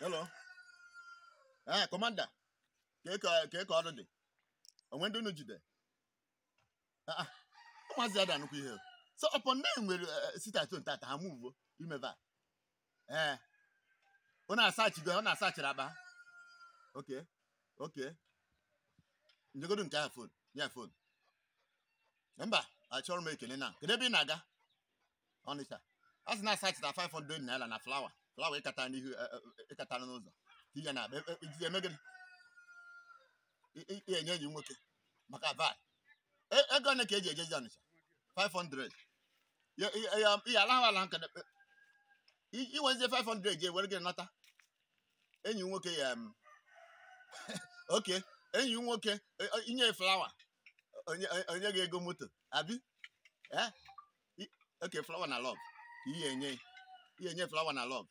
hello ee ah, commander kee ka ọrụ dị onwe ndị unu jide ah, ah. ụmụazị ada anụkwa ihe so ọpọ ndị nwere eh, eh, sitato ntata ha muvo imeva ee eh. ọ na-asachigo ọ na-asachiri akpa ok ok njegodo nke ya fon ya fon mba achọrọ m ekele na kedu ebe ị na-aga ọnịcha a sị na-asachita 500 naira na flawa flawa ịkata n'ihu ịkata e, e, e, n'ụzọ ihe na emegịrị enye enyi nwoke maka vat ego ole ka eji ejezi ọnịcha 500 ya alahụ ala nka iwezie 500 je were gị nata enyi nwoke ya oke enyi nwoke inye flawa onye gị ego moto abi eh? oke flawa na lọv ihe enye ihe enye flawa na lọv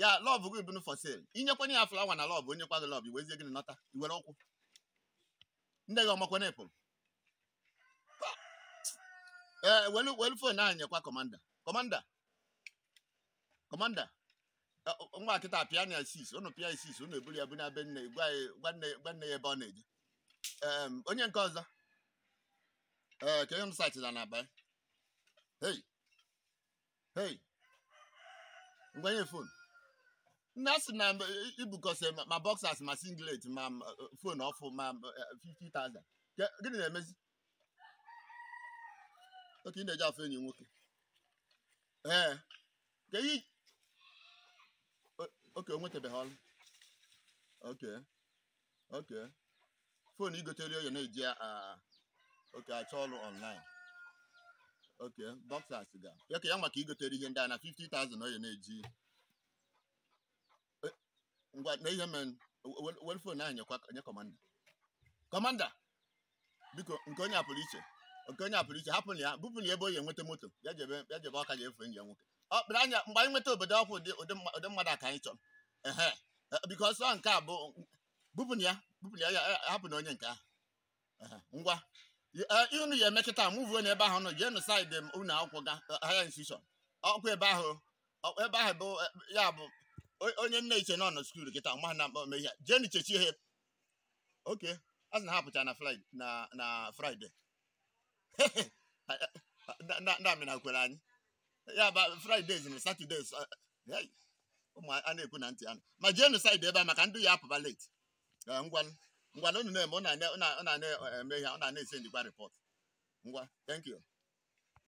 ya lọbụ gị bụnụ for sale inyekwana ya flawa na lọbụ onye kwa gị iwezie gị nọta iwere ụkwụ ndị gị ọmakwana ịpụrụ ee eh, welu welu fon ahụ nyekwa kọmanda kọmanda kọmanda eh, nwa kịta pịa na sis ụnụ pịa sis ụnụ eburu ya bụ na be nne gwa nne ya ebe ọ na-eje onye nke ọzọ ee ka ihe m sachira na abalị hey hey ngwanye fonu Nasi na ibukọsị ma boxers ma singlet ma fon ọfụ ma 50,000 gịnị na-emezi oke ị na-eji afọ enyi nwoke ee ka ihe oke onwetabeghị ọrụ oke oke fon igotere oyo na-eji oke achọ ọrụ online oke boxers ga ya ya maka igotere ihe ndị a na 50,000 oyo na-eji ngwa na ihe men welfare na anyekwa nye kọmanda kọmanda biko nke onye apụrụ iche nke onye apụrụ iche hapụ ya bupụ ya ebe onye nweta moto ya jebe ya jebe ọka ya efe njem nwoke ọ kpere anya mgbe anyị nweta obodo ọkwụ ụdị mmadụ aka anyị chọrọ ehe e, biko ọsọ nke a bụ bupụ ya bupụ ya hapụ na onye nke ahụ ngwa e, unu ya emekịta mụvuo n'ebe ahụ nọ jee nụ saịdị m unu akwụkwọ ga e, haya institushọn ọkwa ebe ahụ ebe ahụ bụ ya bụ onye nne iche nọ na skuul kịta ma na mkpọ ihe jee n'ichechi ihe oke a sị na ha pụcha na na fraịde ndị amịna kwere anyị ya ba fraịde na satọde eh, ụmụ a na-ekwu na ntị anụ ma jee n'ụsaịdị ebe a maka ndị ya apụba leti ngwanụ ngwanụ unu na-eme ọ na-eme ihe ọ na-ese njikwa rịpọt ngwa thank